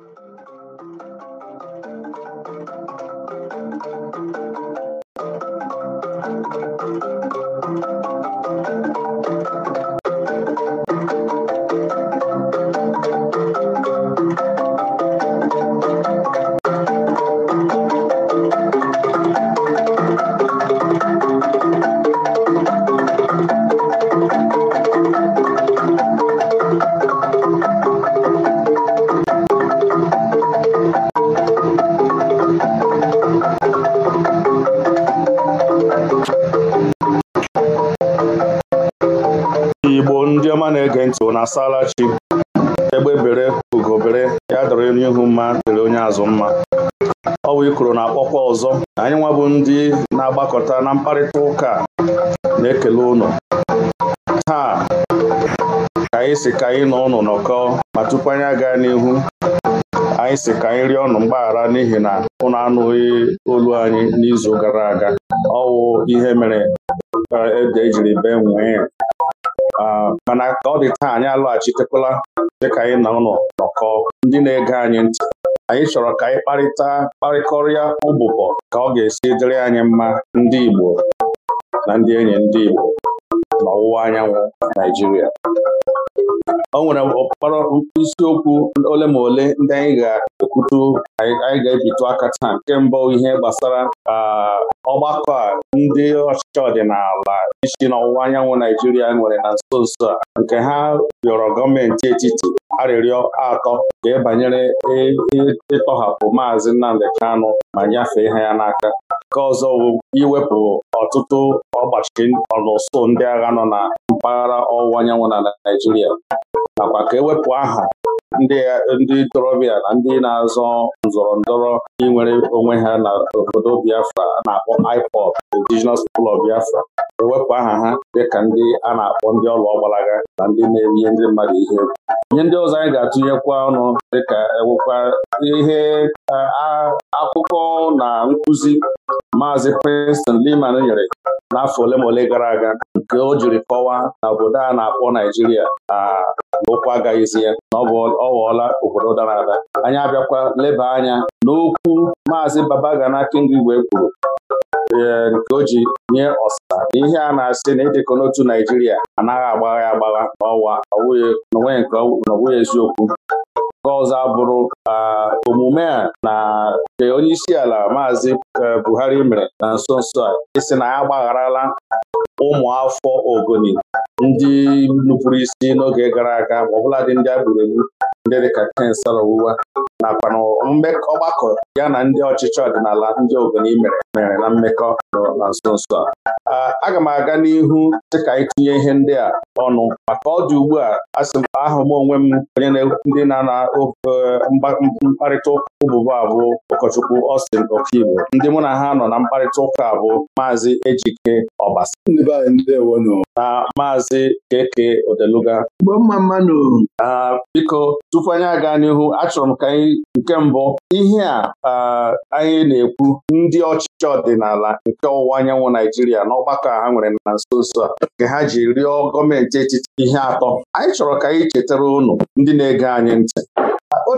Ndị nkuzi na-ege ntị na asala chi egbe bere ugobere ya dọrọ n'ihu ihu mma kere onye azụ mma ọ bụ ikoro na-akpọkwa ọzọ anyị nwa bụ ndị na-agbakọta na mkparịta ụka na-ekele ụnụ taa ka anyị si ka anyị nọ ụnụ nọkọ ma tupu anyị agaa n'ihu anyị si ka anyị rịọ ọnụ mgbaghara n'ihi na ụnụ anụghị olu anyị n'izu gara aga ọwụ ihe mere ede ejiri e bee nwee Ah, mana ka ọ dị taa anyị alọghachitekwala dịka anyị na ụlọ nọkọ ndị na-ege anyị ntị anyị chọrọ ka anyị kparịta kparịkọrịa ụbụbọ ka ọ ga-esi dịrị anyị mma ndị Igbo na ndị enyi ndị Igbo n'ọwụwa anyanwụ Naijiria o nwere ọkpara isiokwu ole ma ole ndị anyị ga-ekwutu anyị ga-ebitu aka taa nke mbụ ihe gbasara ọgbakọ a ndị ọchịchị ọdịnala isi n'ọwụwa anyanwụ Naijiria nwere na nso nso a nke ha rịọrọ gọọmenti etiti arịrịọ atọ ka e banyere e, e, ịtọhapụ maazị Nnamdi Kanụ ma nyefee ha ya n'aka Nke ọzọ bụ iwepụ ọtụtụ ọgbachi ọlụsụ ndị agha nọ na mpaghara ọwụwa anyanwụ na naijiria nakwa ka ewepụ aha ndị ntorobịa na ndị na-azọ nzọrọ ndọrọ inwere onwe ha na obodo Biafra na-akpọ IPOB Indigenous People of Biafra ewepụ aha ha dịka ndị a na-akpọ ndị ọlụ ọgbalaga na ndị na-erihe ndị mmadụ ihe ihe ndị ọzọ anyị ga-atụnyekwa ọnụ dịka ewekwa ihe akụkọ na nkụzi Maazị Preston liman nyere n'afọ ole ma ole gara aga nke o jiri kọwaa na obodo a na-akpọ Naijiria na okwu agaghịzi ya na ọ ghọọla obodo dara ada anyị abịakwa leba anya n'okwu Maazị Babagana Kingigwe kwuru e, nke o ji nye ọsa Ihe a na-asị na ịdịkọ n'otu Naijiria anaghị agbagha ya agbagha n'ọwa n'onwe nke n'onwe eziokwu Nke ọzọ abụrụ omume a na nke ala Maazị e, Buhari mere na nso nso a isi na ya agbagharala ụmụafọ Ogoni ndị nupụrụ isi n'oge gara aga ma ọbụladị ndị a gburu egbu ndị dịka Kensal ụwa nakwa ọgbakọ ya na ndị ọchịchị ọdịnala ndị Ogoni mere mere na mmekọ nọ na nso nso a aga m aga n'ihu dịka anyị tinye ihe ndị a ọnụ maka ọ dị ugbu a asị m ahụ m onwe m onye ndị na-ana e, mkparịta Ụbụba abụ ụkọchukwu Austin Okigbo ndị mụ na ha nọ na mkparịta ụka bụ Maazị Ejike Ọbasa na Maazị Keke Odeluga biko tupu anyị aga n'ihu achọrọ m ka anyị nke mbụ ihe a anyị na-ekwu ndị ọchịchị ọdịnala nke ọwụwa anyanwụ Naijiria na ọgbakọ ha nwere na nso nso a nke ha ji rịọ gọọmenti etiti ihe atọ anyị chọrọ ka anyị chetara unu ndị na-ege anyị ntị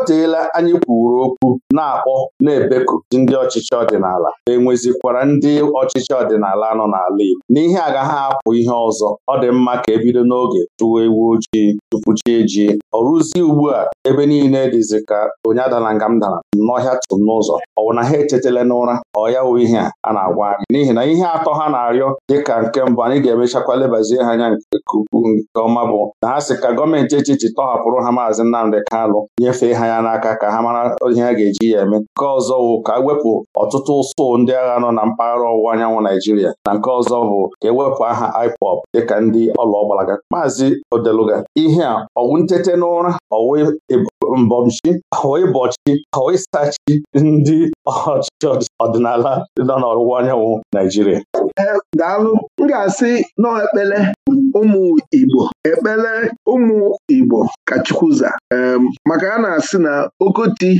teela anyị kwuru okwu na-akpọ na-ebeku ndị ọchịchị ọdịnala enwezikwara ndị ọchịchị ọdịnala nọ n'ala Igbo n'ihe agaghị apụ ihe ọzọ ọ dị mma ka ebido n'oge tụwa ewu ojii tupu chi ji ọ rụzie ugbu a ebe niile dịzi ka onye dara nga m dara n'ọhịa tum n'ụzọ ọ bụ na ha echetala n'ụra ọ ya wụ ihe a na-agwa anyị n'ihi na ihe atọ ha na-arịọ dịka nke mbụ anyị ga-emechakwa lebazie ha anya nke ukwuu nke ọma bụ na ha sị ka gọọmenti echichi tọhapụrụ ha maazị Nnamdị Kanụ nyefee ha anya n'aka ka ha mara ihe a ga-eji ya eme nke ọzọ bụ ka ewepụ ọtụtụ ụsụ ndị agha nọ na mpaghara ọwụwa anyanwụ Naijiria na nke ọzọ bụ ka ewepụ aha IPOB dịka ndị ọla ọgbalaga maazị Odeluga ihe a ọwụ ntete n'ụra ọwụ mbọmchi ọwụ ịbọchi ọwụ ịsachi ndị ọchịchị ọdịnala nọ n'ọwụwa anyanwụ Naijiria daalụ m ga-asị nọọ ụmụ Igbo ekpele ụmụ Igbo ka Chukwuza maka a na-asị na Okoti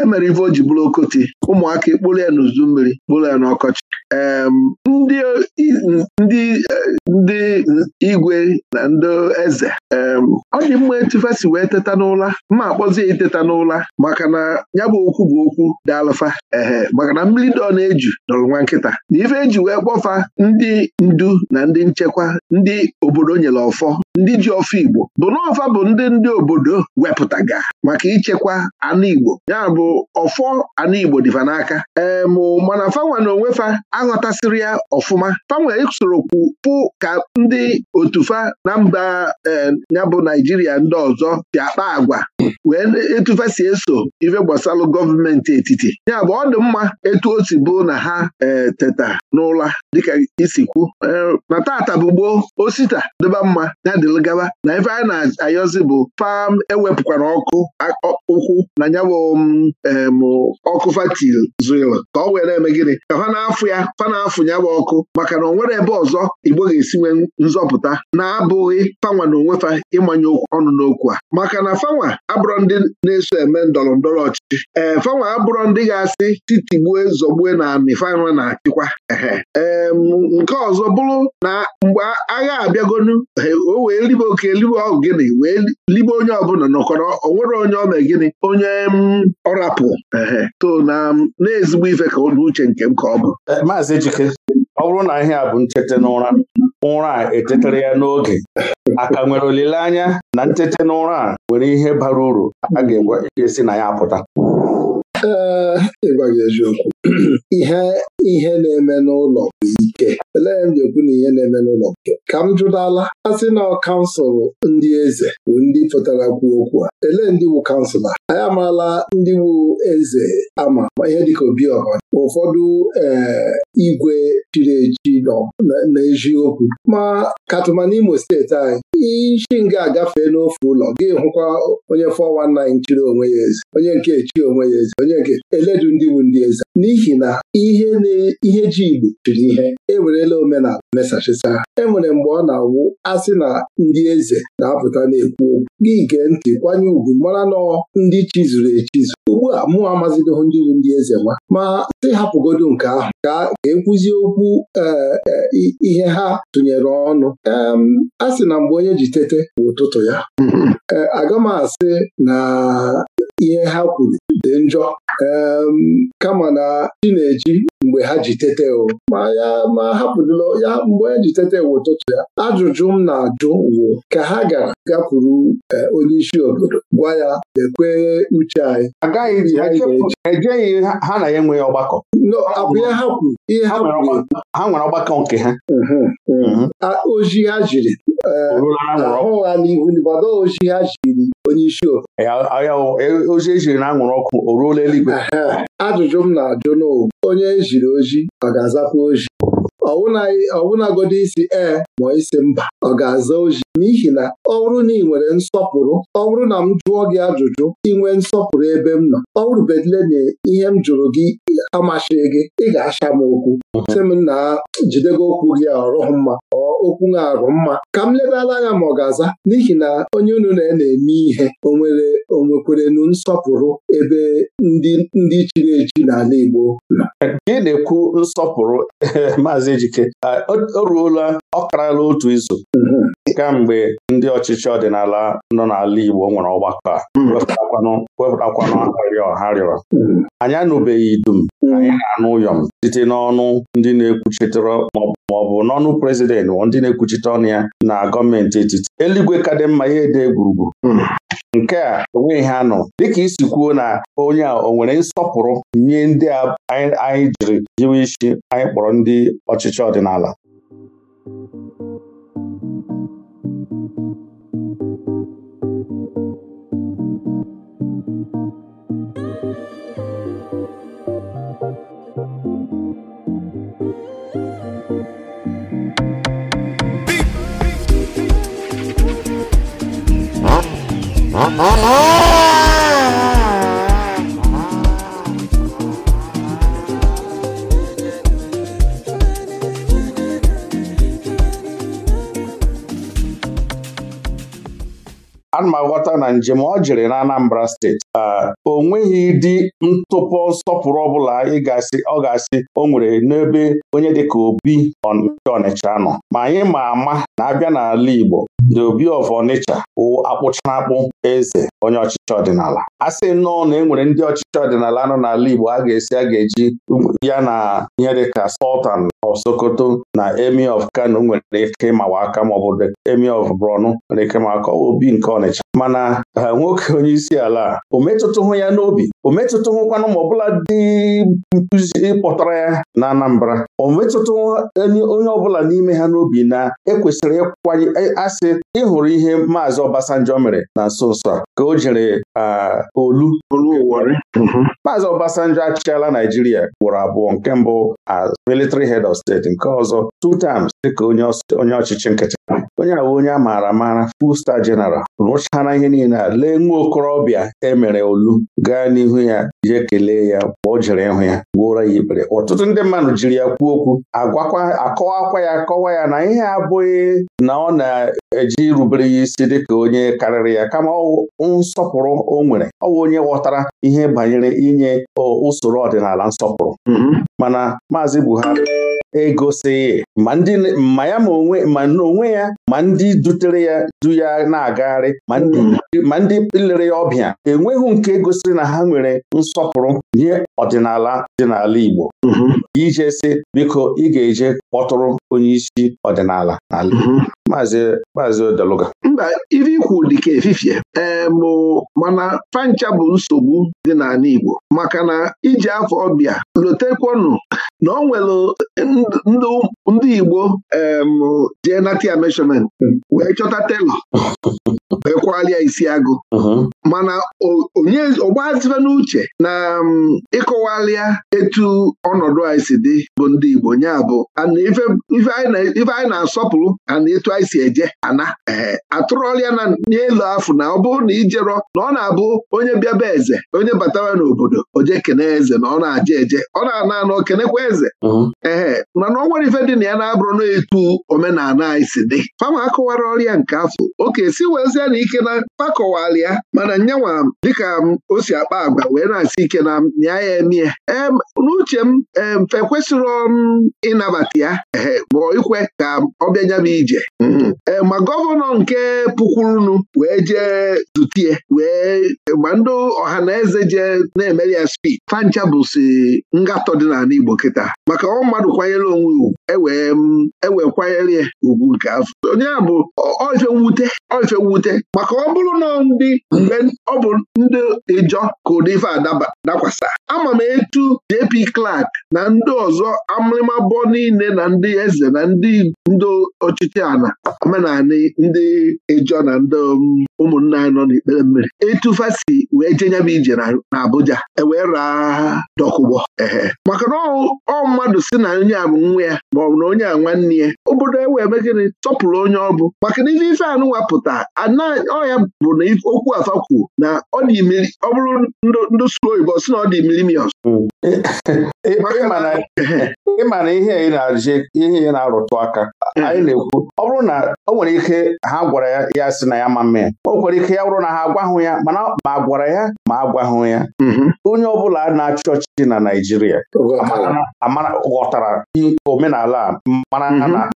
emere ife oji bụrụ Okoti ụmụaka kpụrụ ya n'uzu mmiri kpụrụ ya n'ọkọchị ndị e, ndị igwe na ndị eze ọ dị mma etufesi wee teta n'ụla ma ya iteta n'ụla maka na ya bụ okwu bụ okwu dị alụfa ehe maka na mmiri dị ọ na-eju dọrọ nwa nkịta na ife eji wee kpọfa ndị ndu na ndị nchekwa ndị obodo nyere ọfọ ndị ji ofe Igbo bụ na bụ ndị ndị obodo wepụtaga maka ichekwa anụ Igbo ya bụ ọfọ anụ Igbo dịfa n'aka ee mụ mana fanwa na onwe fa aghọtasịrị ya ọfụma fanwa esorokwu pụ ka ndị otufa na mba ya bụ Naijiria ndị ọzọ si akpa agwa wee etufa si eso ife gbasalụ gọọmenti etiti ya bụ ọ dị mma etu o si bụ na ha e, teta n'ụla dịka isikwu na tata bụ gboo osita dịba mma ya dịlụ gaba na ife a na-ayọzi bụ fam ewepụkwara ọkụ ụkwụ na nyabụ um, ọkụ fatil zụrụ ka ọ were eme gịnị ka fa na-afụ ya fa na-afụ nyabụ ọkụ maka na o nwere ebe ọzọ igbo ga-esi nwee nzọpụta na-abụghị fanwa na onwe fa ịmanye ọnụ n'okwu a maka na fanwa abụrọ ndị na-eso eme ndọrọ ndọrọ ọchịchị ee eh, fanwa abụrọ ndị ga-asị titigbue zọgbue na anị fanwa na-achịkwa ee nke ọzọ bụrụ na mgbe agha abịagonu eh, o wee libe oke libe ọgụ gịnị wee libe onye ọbụla nọkọrọ onwere onye ome gịnị onye mm, ọrapụ ehe to na na-ezigbo ife ka ụdị uche nke m ka ọ bụ eh, maazị Ejike ọ bụrụ na ihe a bụ nchete n'ụra ụra a etetara ya n'oge aka nwere olileanya na nchete n'ụra a nwere ihe bara uru a ga-esi e na ya apụta ee eh, ịgwa gị eziokwu ihe ihe na-eme n'ụlọ bụ ike elee m ji ekwu na ihe na-eme n'ụlọ nke ka m jụdala asị na kansụl ndị eze bụ ndị pụtara kwuo okwu a elee ndị wu kansụla anyị amaala ndị wu eze ama ma ihe dịka obiọha ụfọdụ ee eh, igwe chiri echi n'eziokwu ma katụma Imo steeti anyị ishi nga agafee n'ofe ụlọ gị hụkwa onye 419 chiri onwe ya eze onye nke echi onwe ya eze onye nke eledu ndị wu ndị eze n'ihi na ihe na ndị ihe ji Igbo chiri ihe ewerela omenala mesachisa e nwere mgbe ọ na-awụ asị na ndị eze na-apụta na-ekwu okwu gị gee ntị kwanye ugwu mara na ndị chizuru echizu ugbu a mụ amazidoghị ndị bụ ndị eze nwa ma sị hapụgodo nke ahụ ka ekwuzie okwu e, e, ihe ha tụnyere ọnụ a sị na mgbe onye ji tete bụ ụtụtụ ya mm-hmm. e, aga m asị na ihe ha kwuru dị njọ kama na chi na-eji mgbe ha ji tete o ma ya ma hapụdụla ya mgbe ha ji tete ewu ụtụtụ ya ajụjụ m na-ajụ wụ ka ha gara gakwuru e, onye isi obodo gwa ya dekwe uche anyị agaghị e ha na ya enweghị ọgbakọ ihe ha kwuru ihe ha kwuru ha nwere ọgbakọ nke ha ozi ha jiri ahụ ha n'ihu gbado ochi ha chiri onye isi ozi ejiri na anwụrụ ọkụ o ruola eluigwe ajụjụ m na-ajụ n'ụwa onye ejiri oji ọ ga-azakwa oji ọwụnagodi isi ee ma isi mba ọ ga-aza oji n'ihi na ọ bụrụ na ị nwere nsọpụrụ ọ bụrụ na m jụọ gị ajụjụ inwe nsọpụrụ ebe m nọ ọ bụrụbedile na ihe m jụrụ gị amasịghị gị ị ga-acha m okwu sị m na jidego okwu gị ọrụ mma ọ okwu na-arụ mma ka m ledala anya ma ọ ga-aza n'ihi na onye unu na-eme ihe o nwere onwekwerenu nsọpụrụ ebe ndị chiri echi n'ala Igbo gị na-ekwu nsọpụrụ maazị Ejike o ruola ọ otu izu mhm. kamgbe ndị ọchịchị ọdịnala nọ n'ala Igbo nwere ọgbakọ a hmm. wepụtakwanụ arịrịọ ha rịọrọ hmm. anyị anụbeghị dum hmm. anyị na-anụ ụyọm site n'ọnụ ndị na-ekwuchitere ma ọ bụ n'ọnụ prezidentị ndị na-ekwuchite ọnụ ya na gọọmenti etiti eluigwe ka dị mma ya ede gburugburu nke a onweghị ha nọ dịka isi kwuo na onye a o nwere nsọpụrụ nye ndị a anyị jiri jiwe isi anyị kpọrọ ndị ọchịchị ọdịnala Oh, oh, oh! a ghọta na njem ọ jere na Anambra steeti o nweghị dị ntụpọ nsọpụrụ ọbụla ị ọ ga-asị o nwere n'ebe onye dịka Obi Ọnịcha nọ ma anyị ma ama na abịa n'ala Igbo the Obi of Ọnịcha akpụchara akpụ eze onye ọchịchị ọdịnala a sị nnọọ na e nwere ndị ọchịchị ọdịnala nọ n'ala Igbo a ga-esi a ga-eji ya na ihe dịka sọltan. of Sokoto na emi of Kano nwere ike ịmawa aka maọbụ emi of bronu nwere ike ịmawa aka obi nke Ọnịcha mana ha nwoke onye isi ala o hụ ya n'obi o hụkwanụ ma ọbụla dị nkuzi kpọtara ya na Anambra o metụtụhụ onye ọbụla n'ime ha n'obi na ekwesịrị ịkwanye asị ịhụrụ ihe maazị Obasanjo mere na nso nso a ka o jere olu Mm-hmm. Maazị Obasanjo achịala Naijiria gworo abụọ nke mbụ as military head of state nke ọzọ two times dịka onye ọchịchị nkịtị onye ahụ onye a maara amara full star general rụchara ihe niile a lee nwa okorobịa emere olu gaa n'ihu ya jee kelee ya mgbe o jere ịhụ ya gwuoro ya ikpere ọtụtụ ndị mmadụ jiri ya kwuo okwu akọwakwa ya akọwa ya na ihe abụghị na ọ na-eji rubere ya isi dịka onye karịrị ya kama nsọpụrụ o nwere ọ bụ onye ghọtara ihe banyere inye usoro ọdịnala nsọpụrụ mm-hmm. mana Maazị Buhari egosighị ma ndị ma ya ma onwe ma n'onwe ya ma ndị dutere ya du ya na-agagharị mm. ma ndị lere ya ọbịa enweghị nke gosiri na ha nwere nsọpụrụ nye ọdịnala dị n'ala Igbo mm-hmm. ije si biko ị ga-eje kpọtụrụ onyeisi ọdịnala n'ala mm-hmm. Maazị Maazị Odeluga mba ife ikwu dịka efifie ee mana fancha bụ nsogbu dị n'ala Igbo maka na iji afọ ọbịa lotekwanụ na ọ nwere ndị Igbo jee nata ya meshọment hmm. wee chọta telọ wee kwalịa isi agụ uh-huh. mana onye ọgbazife n'uche na ịkọwalịa etu ọnọdụ anyị si dị bụ ndị Igbo nya bụ ife anyị na-asọpụrụ ana etu anyị si eje ana ee eh, atụrụọlịa na n'elu afụ na ọ bụrụ na ijerọ na ọ na-abụ onye bịaba eze onye batawa n'obodo oje kene eze na ọ na aja eje ọ na-ana anọ kenekwa eze uh-huh. ee mana ọ nwere ife dị na ya na-abụrụ na-etu omenala anyị si dị fama akọwara ọrịa nke afọ oke si wezie na ike na pakọwala mana nyanwa dịka m o si akpa agwa wee na-asị ike na nya ya emie em n'uche m emfe kwesịrị m um, ịnabata ya ee bụ ikwe ka ọ bịa m ije mm-hmm. ee ma gọvanọ nke pukwurunu wee jee zutie wee gba ndị ọha na eze jee na-emere ya spi fancha bụsi ngatọ dị n'ala Igbo kịta maka ọ mmadụ kwanyere onwe ugwu ewee mm, ewee kwanyere ya ugwu nke afọ onye a bụ oife mwute oife mwute maka ọ bụrụ na ndị mgbe ọ bụ ndị ịjọ ka ụdị ife adaba dakwasa ama m etu JP Clark na ndị ọzọ amịmabọ niile na ndị eze na ndị ndị ọchịchị ana omenala ndị ịjọ na ndị mm, ụmụnna anyị nọ n'ikpere mmiri etufasi fasi wee jenyem ije na Abuja ewee raa dọkụgbọ ehe maka na ọ mmadụ si na onye a bụ nwa ya maọbụ na onye a nwanne ya obodo e wee megịrị tọpụrụ onye ọ bụ maka na ife ife anụnwa pụta ọya bụ na okwu afa kwuo na ọ bụrụ ndụ sụrụ oyibo si na ọ dị milimios mm. ịma na ihe ihe na-arụtụ aka eh. anyị na-ekwu ọ bụrụ na o nwere ike ha gwara ya ya si na ya ma mee o nwere ike ya bụrụ na ha agwahụ ya mana ma gwara ya ma agwahụ ya mhm. onye ọ bụla na-achị ọchịchị na Naịjirịa ghọtara omenala ala mara mhm. na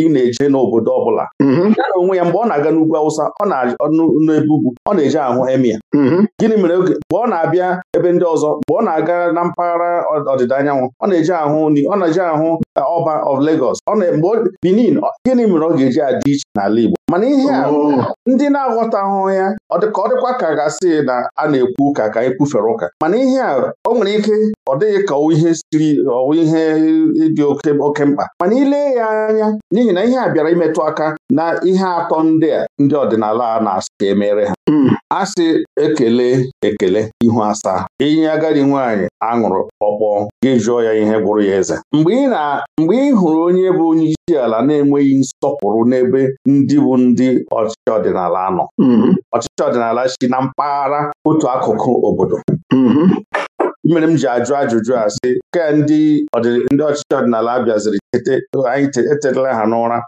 ị na-eje n'obodo ọbụla mm-hmm. ya na onwe ya mgbe ọ na-aga n'ugwu awụsa ọ na-n'ebe ugwu ọ na-eje ahụ emia mm-hmm. gịnị mere oge mgbe ọ na-abịa ebe ndị ọzọ mgbe ọ na-aga na mpaghara ọdịda anyanwụ ọ na-eje ahụ ni ọ na-eje ahụ ọba e, of Legos mgbe Benin gịnị mere ọ ga-eji adị iche n'ala Igbo mana ihe a oh. ndị na-aghọtahụ ya ọ ọ dịkwa ka gasị na a na-ekwu ụka ka anyị kwufere ụka mana ihe a o nwere ike ọ dịghị ka ihe siri ọwụ ihe dị oke mkpa mana ilee ya anya n'ihi n'ihi na ihe a bịara imetụ aka na ihe atọ ndị ndị ọdịnala a na-asị ka emere ha hmm. asị ekele ekele ihu asaa inye agadi nwaanyị aṅụrụ ọkpọọ gị jụọ ya ihe gwụrụ ya eze mgbe ị hụrụ onye bụ onye isi ala na-enweghị nsọpụrụ n'ebe ndị bụ ndị ọchịchị ọdịnala nọ hmm. ọchịchị ọdịnala si na mpaghara otu akụkụ obodo hmm. mere m ji ajụ ajụjụ a sị ke ndị ndị ọchịchị ọdịnala abịaziri anyị etetala ha n'ụra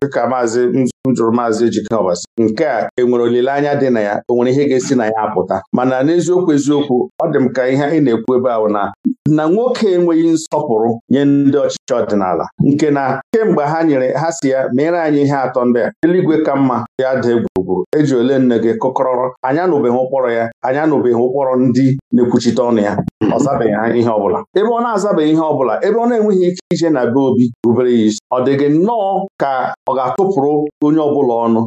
dịka maazị njụrụ maazị Ejike Ọbasi nke a enwere olileanya dị na ya o nwere ihe ga-esi na ya apụta mana n'eziokwu eziokwu ọ dị m ka ihe anyị na-ekwu ebe ahụ na na nwoke enweghị nsọpụrụ nye ndị ọchịchị ọdịnala nke na kemgbe ha nyere ha si ya mere anyị ihe atọ ndị a eluigwe ka mma ya dị egwuregwu eji ole nne gị kụkọrọrọ anya anụbeghị ụkpọrọ ya anya anụbeghị ụkpọrọ ndị na-ekwuchite ọnụ ya ọ zabeghị ihe ọbụla ebe ọ na-azabeghị ihe ọbụla ebe ọ na-enweghị ike ije na be obi rubere ya isi ọ dị gị nnọọ ka ọ ga-atụpụrụ onye ọbụla ọnụ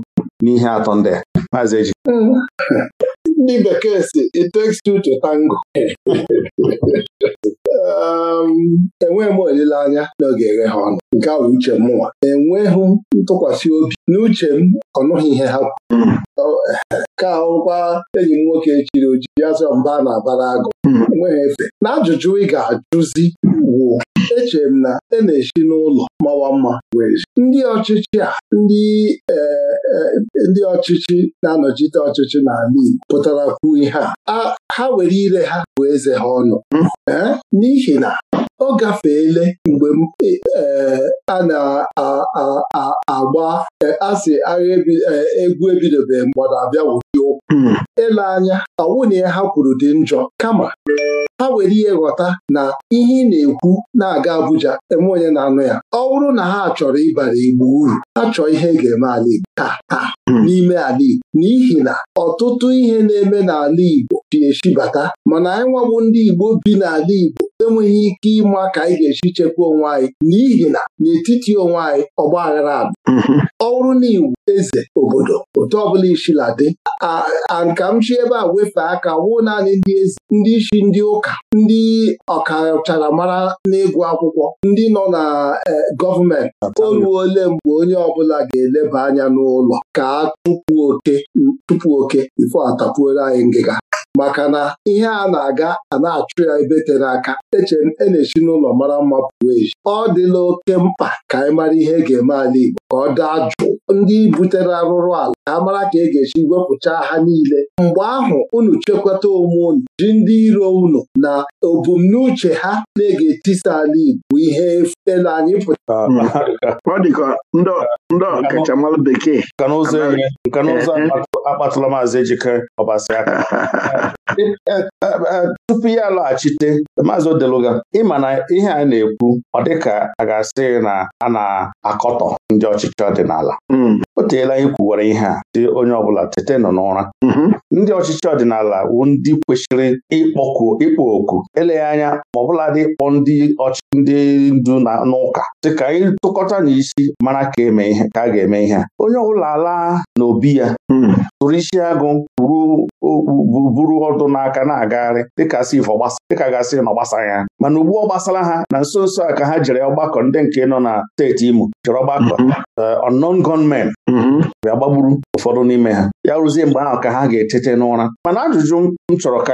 n'ihe atọ ndị a maazị eji hmm. ndị bekee si it takes two to tango um, enweghị m olileanya na ọ ga-eghe ha ọnụ nke a uche mụnwa enweghị ntụkwasị obi n'uche m ọnụghị ihe ha hmm. ka ahụkwa enyi m nwoke chiri oji azọ mba na-abara agụ hmm. enweghị efe na ajụjụ ị ga-ajụzi wụ echere m na a e na-esi n'ụlọ mawa mma wee ndị ọchịchị a ndị ee eh, ndị ọchịchị na-anọchite ọchịchị n'ala Igbo pụtara kwuo ihe a ha were ire ha bụ eze ha ọnụ hmm. n'ihi na ọ gafeele mgbe m e, e, a na-agba e, asị agha egwu ebidobeghị mgbada abịa wụdi okwu ịla hmm. anya ọwụna ya ha kwuru dị njọ kama ha were ihe ghọta na ihe ị na-ekwu na-aga Abuja enwe onye na-anụ ya ọ bụrụ na ha chọrọ ịbara Igbo uru ha chọọ ihe ga-eme ala Igbo taa taa hmm. n'ime ala Igbo n'ihi na ọtụtụ ihe na-eme n'ala Igbo ji eshibata mana anyị nwabụ ndị Igbo bi n'ala Igbo enweghị ike ịma ka anyị ga-eji chekwa onwe anyị n'ihi na n'etiti onwe anyị ọgba aghara adị mhm. ọ bụrụ na iwu eze obodo otu ọbụla ishila dị a nka m chi ebe a wefe aka wụ naanị ndị eze ndị isi ndị ụka ndị mara n'ịgụ akwụkwọ ndị nọ na e, gọọmenti o ole mgbe onye ọbụla ga-eleba anya n'ụlọ ka a tupu oke tupu oke ifo atapuola anyị ngịga maka na ihe a na-aga a na-achụ ya ebe tere aka eche e na-echi n'ụlọ mara mma pụrụ echi ọ dịla oke mkpa ka anyị mara ihe e ga-eme ala Igbo ka ọ daa jụụ ndị butere arụrụ ala ka mara ka e ga-esi wepụchaa ha niile mgbe ahụ unu chekwata onwe unu ji ndị iro unu na ebumnuche ha na-ege etisa ala Igbo bụ ihe ele anyị pụtara ah, ọ dị ka bekee eh, eh. akpatụla maazị Ejike Ọbasi aka tupu ya alọghachite maazị Odeluga ịma na ihe a na-ekwu ọ dịka a ga-asị na a na-akọtọ ndị ọchịchị ọdịnala hmm. o teela anyị kwuwere ihe a dị onye ọbụla tete nọ n'ụra hmm. ndị ọchịchị ọdịnala wu ndị kwesịrị ịkpọku ịkpọ oku eleghị anya ma ọbụladị ịkpọ ndị ndị ndu na n'ụka dị ka anyị tụkọta n'isi mara ka eme ihe ka a ga-eme ihe a onye ọbụla laa n'obi ya hmm. tụrụ isi agụ buru ụdụ n'aka na-agagharị dịka si ifo dịka gasịrị na ọ gbasara ya mana ugbu ọ gbasara ha na nso nso a ka ha jere ọgbakọ ndị nke nọ na steeti Imo jere ọgbakọ mhm. eh, unknown gunmen mhm. bịa gbagburu ụfọdụ n'ime ha ya rụzie mgbe ahụ ka ha ga-etete n'ụra mana ajụjụ m chọrọ ka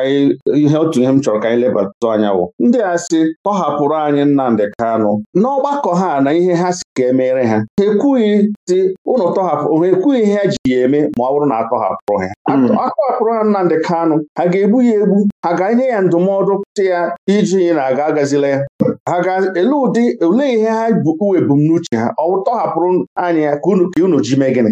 ihe otu ihe m chọrọ ka anyị lebatụ anya bụ ndị a sị tọhapụrụ anyị Nnamdị Kanụ n'ọgbakọ ha na ihe ha si ka e meere ha ha ekwughị dị ụlọ tọhapụ ha ekwughị ihe ji ya eme ma ọ bụrụ na atọhapụrụ ha hmm. atọhapụrụ ha Nnamdị Kanụ ha ga-egbu ya egbu ha ga-enye ya ndụmọdụ tị ya iji na aga agazila ya ha ga-ele ụdị olee ihe ha bụ ebumnuche ha ọ tọhapụrụ anya ya ka unu ji mee gịnị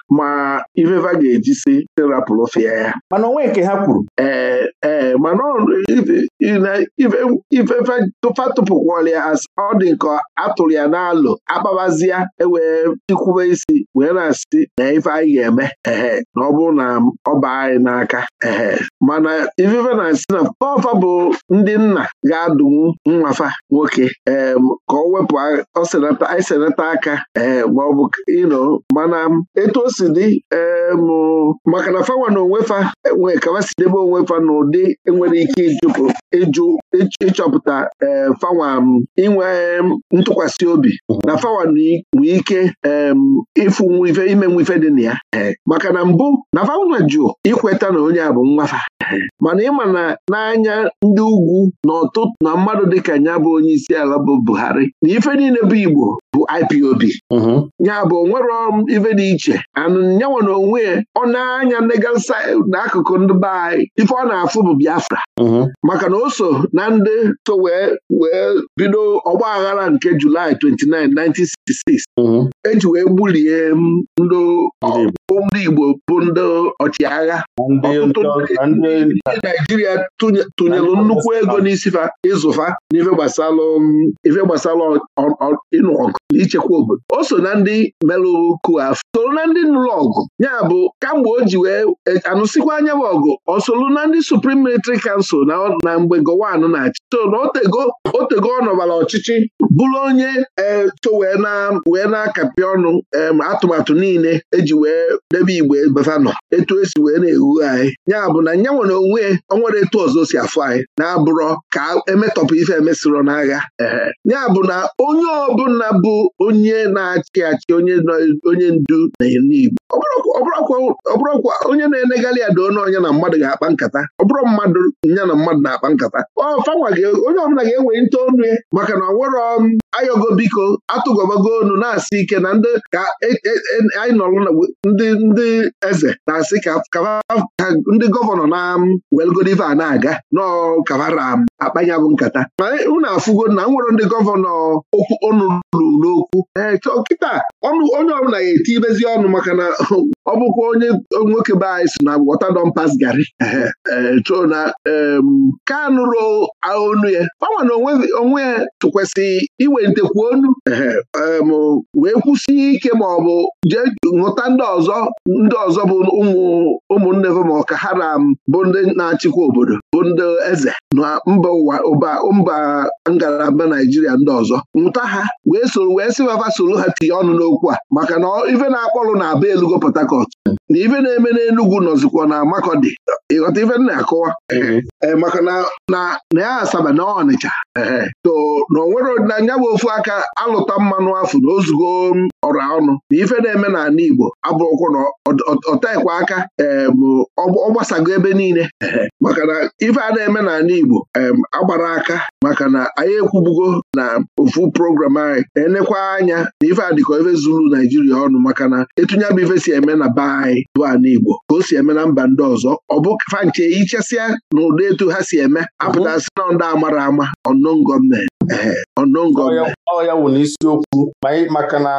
ma ifefa ga-eji si terapụlụfịa ya mana onwe nke ha kwuru ee ee mana ifefa tụfa tụpụkwala ya ọ dị nke atụrụ ya n'alụ akpabazia ewee ikwube isi wee na-asị na ife anyị ga-eme ee na ọ bụrụ na ọ baa anyị n'aka ee mana ifefe na-asị na ọfa bụ ndị nna ga-adụnwu nwafa nwoke ee ka ọ wepụ anyị senata aka ee maọbụ ino mana etu o si si dị eh, maka na fawa na onwefa nwee kawasi debe onwefa na ụdị enwere ike ịjụ ịchọpụta eh, fawa inwe ntụkwasị obi na fawa nwee ike ịfụ nwife ime nwife dị na ya eh, maka na mbụ na fawa jụ ikweta na onye a bụ nwafa mana ịma na n'anya ndị ugwu na ọtụtụ na mmadụ dịka ya bụ onye isi ala bụ Buhari na ife niile bụ Igbo bụ IPOB mm-hmm. ya bụ onwero ife dị iche a nyanwe na onwe ọ na-anya n'akụkụ ndị be anyị ife ọ na-afụ bụ Biafra maka na o so na ndị so wee wee bido ọgba aghara nke Julaị 29 1966 eji wee gbulie ndị Igbo bụ ndị ọchịagha ndị Naijiria tụnyelụ nnukwu ego n'isifa ịzụfa n'ife gbasalụ um, ife ịnụ ọgụ na ichekwa obodo o so na ndị melụrụ ku afọ soro na ndị nụrụ ọgụ ya bụ kamgbe o ji wee e, anụsịkwa anya bụ ọgụ ọ na ndị suprim Military kansụl na na mgbe gọwanụ na-achị so na otego otego ọchịchị bụrụ onye eto wee na-akapị ọnụ atụmatụ niile eji wee debe igbe basanọ etu esi wee na-ewu anyị ya bụ na nya nwere onwe onwere etu ọzọ si afụ anyị na-abụrọ ka emetọpụ ife emesịrọ n'agha ya bụ na onye ọbụla bụ onye na-achị achị onye ndu na igbo ọ bụrụkwa onye na-enegharị ada onye na mmadụ ga-akpa nkata ọ bụrụ mmadụ ya na mmadụ na-akpa nkata ọ fanwa onye ọbụla ga enwe nte onu maka na ọ m um, ayọgo biko atụgọbago onu na-asị ike na ndị ka e, e, e, anyị nọrọ ndị ndị eze na-asị ka ndị gọvanọ na welgodiva na-aga n'ọkavara akpanyabụ nkata ma unu afụgo na nwere ndị gọvanọ okwu ọnụ n'okwu kịta ọnụ onye ọbụla ga-eti ibezi ọnụ maka na ọ bụkwa onye nwoke be anyị so na wọtadọmpas gari na ka nụrụ onu ya kpanwa na onwe ya tụkwasị iwe ekpente kwuo wee kwụsị ike ma ọ bụ jee ṅụta ndị ọzọ ndị ọzọ bụ ụmụnne ma ọ ka ha bụ ndị na-achịkwa obodo bụ ndị eze na mba ụwa ụba mba ngalaba naijiria ndị ọzọ nwụta ha wee soro wee sị fafa soro ha tinye ọnụ n'okwu a maka na ife na-akpọrụ na aba elugo Port Harcourt na ife na-eme n'Enugu nọzikwa na Makọdị ịghọta ife na-akọwa e, maka na ya Asaba na Ọnịcha to na onwere na nya bụ ofu aka alụta mmanụ afọ na ozugbo ọra ọnụ na ife na-eme na n'ala Igbo abụrụkwa na ọtaekwa aka ee bụ ọ gbasago ebe niile maka na ife a na-eme n'ala Igbo agbara aka maka na anyị ekwubugo na ofu program anyị enekwa anya na ife adịkọ ife zuru Naijiria ọnụ maka na etunye bụ ife si eme na be anyị bụ ana Igbo ka o si eme na mba ndị ọzọ ọ bụ fanche ichesịa na ụdị etu ha si eme apụtasị na ndị amara ama ọnọn gọọmenti ọnọn gọọmenti ọ ya wụ n'isiokwu maka na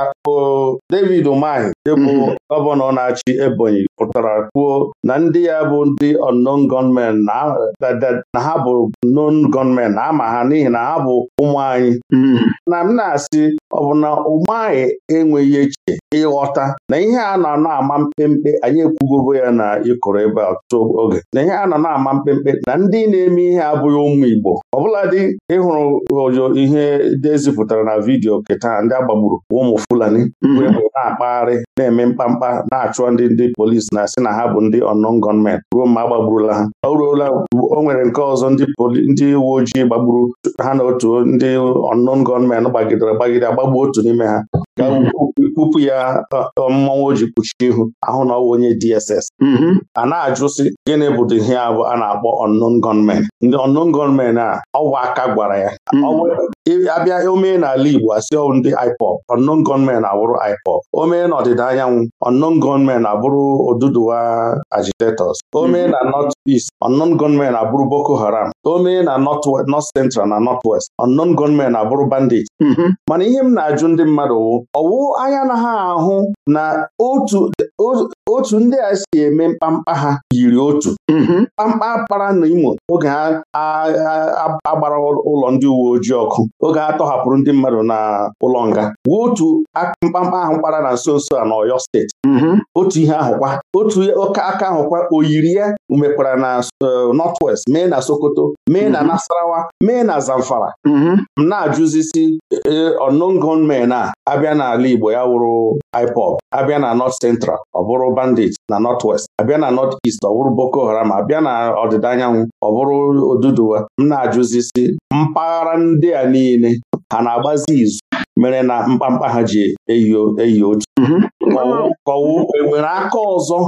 David Umahi dịbụ mhm. gọvanọ na-achị Ebonyi pụtara kwuo na ndị ya bụ ndị unknown gunmen na ha bụ non gọọmenti na ama ha n'ihi na ha bụ ụmụ anyị anyị hmm. na m na-asị ọ bụ na ụmụ anyị enweghị echiche ịghọta na ihe a nọ na-ama mkpemkpe anyị ekwugogo ya na ịkụrụ ebe ọtụtụ oge na ihe a nọ na-ama mkpemkpe na ndị na-eme ihe abụghị ụmụ Igbo ọbụladị ịhụrụ ojo ihe dezipụtara na vidiyo keta ndị agbagburu ụmụ Fulani mgbe hmm. na-akpagharị na-eme mkpamkpa na-achụ ndị ndị polisi na-asị na ha bụ ndị unknown gọọment ruo mgbe agbagburula ha o ruola o nwere nke ọzọ ndị uwe ojii gbagburu ha na otu ndị ọnnọn gunmen gbagidere gbagide agbagbu otu n'ime ha ka mhm. kwupụ ya mmọnwụ o ji kpuchie ihu ahụ na ọwụ onye DSS mhm. a na-ajụsị gịnị bụ ihe a bụ a na-akpọ unknown gunmen ndị unknown gunmen a ọwụ aka gwara ya mhm. abịa omee n'ala Igbo asị ọwụ ndị IPOB unknown gunmen abụrụ IPOB omee na ọdịda anyanwụ unknown gunmen abụrụ Oduduwa agitators omee na North East unknown gunmen abụrụ Boko Haram omee na North Central na nọt West unknown gunmen abụrụ bandits mana ihe m na-ajụ ndị mmadụ wụ ọwụ anya na ha ahụ na otu otu ndị a si eme mkpamkpa ha yiri otu mm-hmm. mkpamkpa kpara n'Imo oge a agbara ụlọ ndị uwe ojii ọkụ oge ha tọhapụrụ ndị mmadụ na ụlọ nga wee otu mkpamkpa ahụ kpara na nso nso a na Ọyọ steeti mm-hmm. otu ihe ahụkwa otu oke aka ahụkwa oyiri ya mekwara na eh, West mee na Sokoto mee na mm-hmm. Nasarawa mee na Zamfara m na-ajụzisi eh, unknown gunmen a abịa n'ala Igbo ya wụrụ IPOB abịa na North Central ọ bụrụ bandit na north west abịa na north east ọ bụrụ boko haram abịa na ọdịda anyanwụ ọ bụrụ oduduwa m na-ajụzisi mpaghara ndị a niile ha na-agbazi izu mere na mkpamkpa ha ji eyo eyi otu mhm. ka o nwere aka ọzọ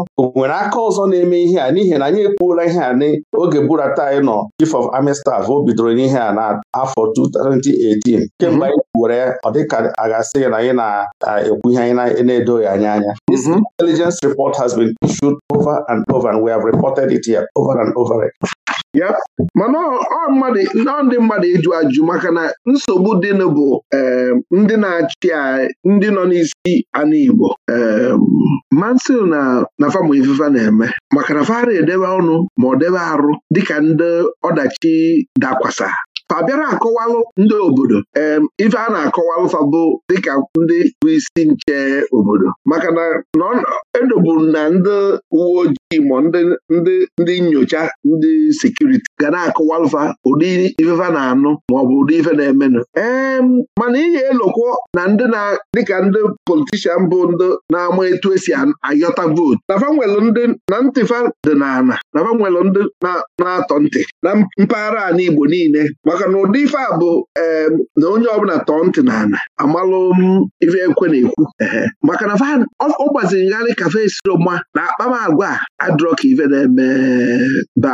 ọzọ na-eme ihe a n'ihi na anyị ekwuola ihe a n'oge burata anyị nọ chief of army staff o bidoro n'ihe a n'afọ 2018 kemgbe mhm. anyị were ọdịka ọ na anyị na-ekwu ihe anyị na-edoghị anya anya this mhm. intelligence report has been issued over and over and we have reported it here over and over ya mana ọ ndị mmadụ ịjụ ajụ maka na nsogbu dịnụ bụ ndị na-achị ndị nọ n'isi ana Igbo mansị na na famụ ifefa na-eme maka na fara edebe ọnụ ma ọ debe arụ dịka ndị ọdachi dakwasa fa akọwalụ ndị obodo ife a na-akọwalụ fabụ bụ dịka ndị bụ isi nche obodo maka na edoburu na ndị uwe ojii Igbo ndị ndị nyocha ndị sekuriti ga na-akụwa mfa ụdị ifefa na-anụ maọbụ ụdị ife na-emenụ ee mana ihe elokwo na ndị na dịka ndị politishan bụ ndị na-ama etu esi ayọta vootu nafa ndị na ntịfa dị n'ala ndị na-atọ ntị na mpaghara ala Igbo niile maka na ụdị ife a bụ ee na onye ọbụla tọọ ntị n'ala amalụ ife ekwe na-ekwu maka na ọ gbaziri ngharị kafe siroma na akpamagwa agwa adụrọ ka ife na-eme be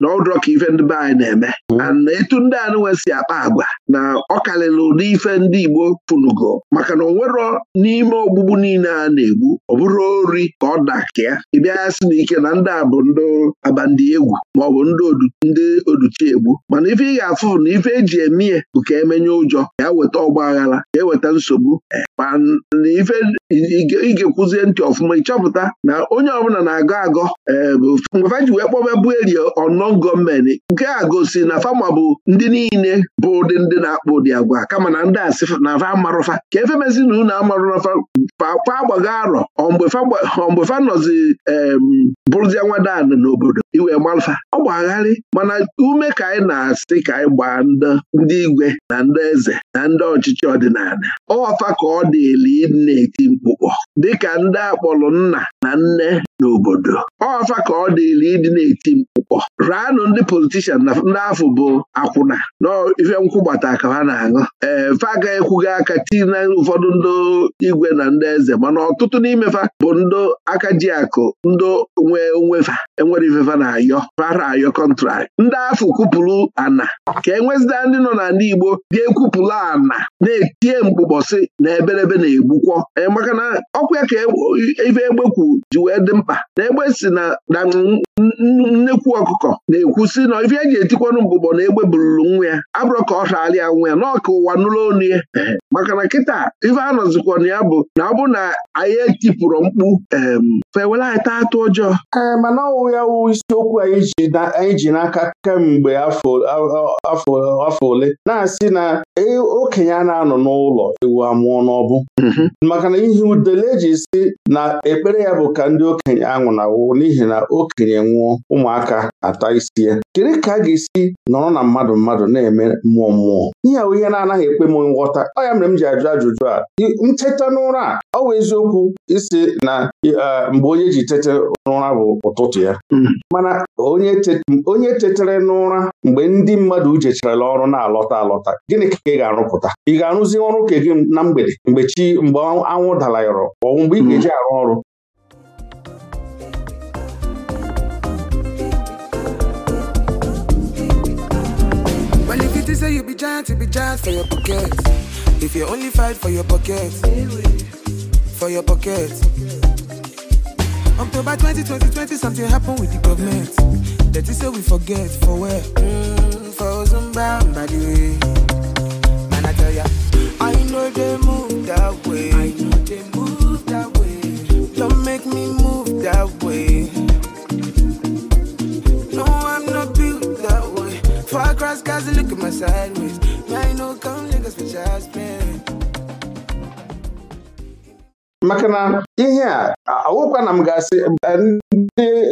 na ọdụrọ ka ife ndị na-eme hmm. ana etu ndị anụnwe si akpa agwa na ọ karịrị ụdị ife ndị Igbo pụnugo maka na onwero n'ime ogbugbu niile a na-egbu ọ bụrụ ori ka ọ dakịa ị bịa ya sị na na ndị a bụ ndị abandị egwu maọbụ ndị oduchi egbu mana ife ị ga-afụ na ife eji eme ya bụ ka emenye ụjọ ya weta ọgba aghara ka eweta nsogbu eh, mana ife ị ga-ekwuzie ntị ọfụma ịchọpụta na onye ọbụla na-agọ agọ eh, mgbe ji wee kpọba bụ eri ọnọ gọọmenti nke a gosi na fama bụ ndị niile bụ ụdị ndị na-akpụ ụdị agwa kama na ndị asị na fa amarụfa ka efe mezi na unu amarụla fa agbago arọ mgbe fa nọzi bụrụzia nwadan n'obodo iwe gbalfa ọ gbagharị mana ume ka anyị na-asị ka anyị gbaa ndị igwe na ndị eze na ndị ọchịchị ọdịnala ọwafa ka ọ dị eli na-eti mkpu ụkpọ dịka ndị akpọrọ nna na nne n'obodo ọfa ka ọ dịrị ịdị na-eti mkpụkpọ raanụ ndị politishan na ndị afọ bụ akwụna na ife nkwụgbata ka ha na-aṅụ ee fa agaghị ekwughị aka tii na ụfọdụ ndị igwe na ndị eze mana ọtụtụ n'imefa bụ ndị aka ji akụ ndị nwe onwefa enwere ifefa na-ayọ fara ayọ kọntrakt ndị afọ kwupụrụ ana ka enwezida ndị nọ ndị Igbo ga-ekwupụrụ ana na-etie mkpụkpọsị na eberebe na egbukwọ ee na ọkwa ka e egbe kwuru ji wee dị mkpa na egbe si na nnekwu ọkụkọ na-ekwusi na ife eji etikwanụ mbụbọ na egbe bururu nwa ya abụrọ ka ọ raara ya nwa ya n'ọka ụwa nụrụ onu ya maka na kịta ife anọzikwa na ya bụ na ọ bụ na anyị etipụrụ mkpu fewere anyị taa atụ ọjọọ mana ọwụ ya wụ isiokwu anyị e e ji n'aka kemgbe afọ ole na-asị na okenye a na-anọ n'ụlọ ewu amụọ n'ọbụ mm-hmm. maka na udele ji si na ekpere ya bụ ka ndị okenye anwụnawụ n'ihi na okenye nwụọ ụmụaka ata isi kedu ka a ga-esi nọrọ na mmadụ mmadụ na-eme mmụọ mmụọ ihe ahụ ihe na-anaghị ekpe m nghọta ọ ya mere m ji ajụ ajụjụ a ncheta n'ụra ọ bụ eziokwu isi na mgbe onye ji tete n'ụra bụ ụtụtụ ya hmm. mana onye tetere n'ụra mgbe ndị mmadụ jecharala ọrụ na-alọta alọta gịnị ka ị ga-arụpụta ị ga-arụzi ọrụ ka gị na mgbede mgbe chi mgbe anwụ dalayọrọ ọ bụ mgbe ị ga-eji arụ ọrụ Plenty say you be giant, you be giant for your pocket. If you only fight for your pocket, for your pocket. October 2020, something happened with the government. That say we forget for where? Mm, for Zimbabwe, by the way. Man, I tell ya, I know they move that way. my sideways. Might no come niggas ihe a awụkwa na m ga-asị eh,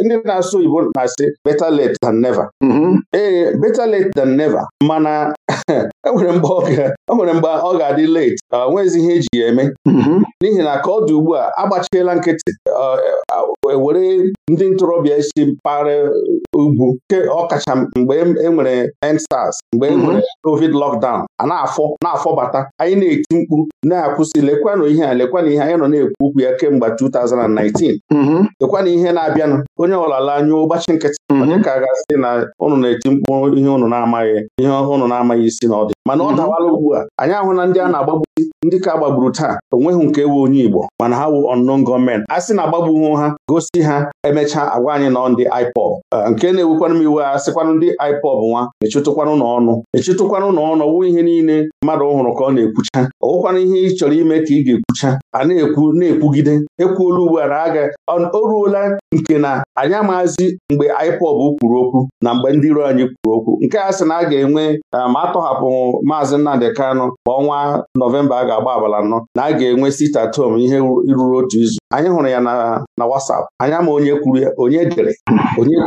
ndị na-asụ Igbo na-asị better late than never mm-hmm. ee eh, better late than never mana enwere e mgbe ọ ga-adị late onwezi ihe eji ya eme mm-hmm. n'ihi na ka ọ dị ugbu a agbachiela nkịtị eh, e were ndị ntorobịa isi mpaghara ugwu nke ọkacha mgbe enwere e EndSARS mgbe enwere mm-hmm. covid lockdown a na-afọ na-afọbata anyị na-eti mkpu na-akwụsị lekwanụ ihe a lekwanụ ihe anyị nọ na-ekwu okwu ya kemgbe kemgbe 2019 na ihe na-abịanụ onye ọlala anya anyụ ụgbachi nkịtị mm-hmm. ka gasị na ụnụ na-eti mkpu ihe ụnụ na-amaghị ihe ụnụ na-amaghị isi na ọdị mana ọ mm-hmm. dawala ugbu a anyị ahụ na ndị a na-agbagbu ndị ka gbagburu taa onweghị nke ewu onye Igbo mana ha wụ unknown gọọmenti a sị na agbagbughị ha gosi ha emechaa agwa anyị nọ ndị IPOB nke na-ewukwanụ m iwe a sịkwanụ ndị IPOB nwa mechitụkwanụ n'ọnụ mechitụkwanụ n'ọnụ ọwụ ihe niile mmadụ ọhụrụ ka ọ na-ekwucha ọwụkwanụ ihe ị chọrọ ime ka ị ga-ekwucha a na-ekwu na-ekwugide ekwuola ugbu a na aga o ruola nke na anyị amaghịzi mgbe IPOB kwuru okwu na mgbe ndị iro anyị kwuru okwu nke a sị na a ga-enwe ma um, atọhapụ maazị Nnamdị Kanụ ọnwa Nọvemba Disemba a ga-agba abalị anọ na a ga-enwe sit at ihe ruru otu izu anyị hụrụ ya na WhatsApp anya ma onye kwuru ya onye dere onye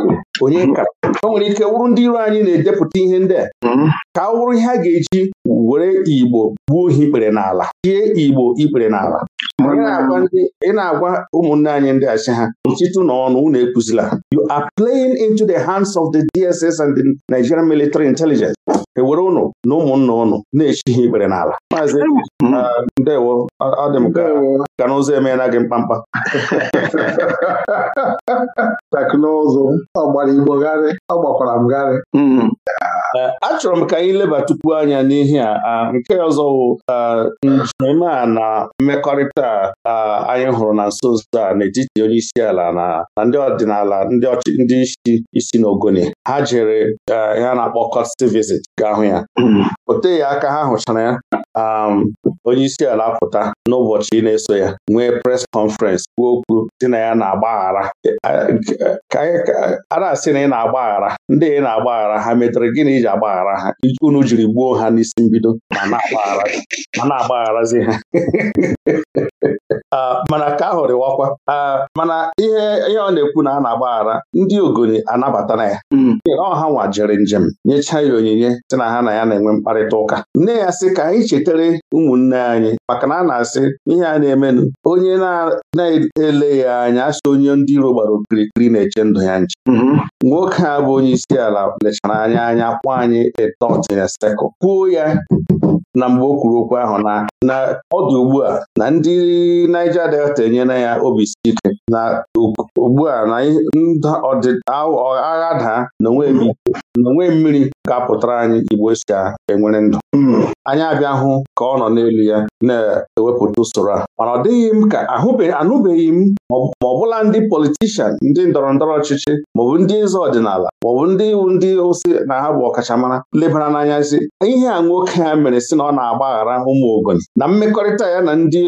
onye o nwere ike wụrụ ndị iro anyị na-edepụta ihe ndị a hmm. ka ọ wụrụ ihe a ga-eji were Igbo gbuo ihe ikpere n'ala tie Igbo ikpere n'ala ị na-agwa ụmụnne anyị ndị achị ha nchịtụ na ọnụ unu ekwuzila you are playing into the hands of the DSS and the Nigerian military intelligence ewere ụnụ na ụmụnna ụnụ na-echi ha ikpere n'ala maazị ndewo ọ dị m ka n'ụzọ emeela gị mkpamkpa teknụzụ ọ igbo gharị ọ gbakwara m gharị mm-hmm. achọrọ ah. m ka anyị leba tupu anya n'ihe a nke ọzọ njem a na mmekọrịta anyị hụrụ na nso nso a n'etiti onye isi ala na ndị ọdịnala ndị isi isi na n'Ogoni ha jere ya na-akpọ kọt visit ga-ahụ ya hmm. o teghị aka ha hụchara ya Um, onye isi ala pụta n'ụbọchị ị na-eso ya nwee pres kọnferensị kwuo okwu dị na ya na-agbaghara a na-asị na ị na-agbaghara ndị ị na-agbaghara ha metere gịnị iji agbaghara ha unu jiri gbuo ha n'isi mbido ma na-agbagharazi ha mana ka ahụ dịwakwa mana ihe ihe ọ na-ekwu na a na-agbaghara ndị ogoni anabata na ya hmm. ọ ha nwa jere njem nyechaa ya onyinye si na ha na ya na-enwe mkparịta ụka nne ya sị ka anyị cheta wulitere ụmụnne anyị maka na a na-asị ihe a na-emenụ onye na-ele ya anya asị onye ndị iro gbara okirikiri na-eche ndụ ya nche mhm. nwoke a bụ onye isi ala lechara anya anya kwụ anyị a dot in kwuo ya na mgbe o kwuru okwu ahụ na na ọ dị ugbu a na ndị Niger Delta enyela ya obi ike na ugbu a na agha daa na onwe mmiri ga-apụtara anyị Igbo e si enwere ndụ hmm. anyị abịa hụ ka ọ nọ n'elu ya na-ewepụta usoro a mana ọ dịghị m ka anụbeghị m ma ọbụla ndị politishan ndị ndọrọ ndọrọ ọchịchị maọbụ ndị eze ọdịnala maọbụ ndị iwu ndị ụsị na ha bụ ọkachamara lebara n'anya si ihe a nwoke ha mere si na ọ na-agbaghara ụmụ ogoni na mmekọrịta ya na ndị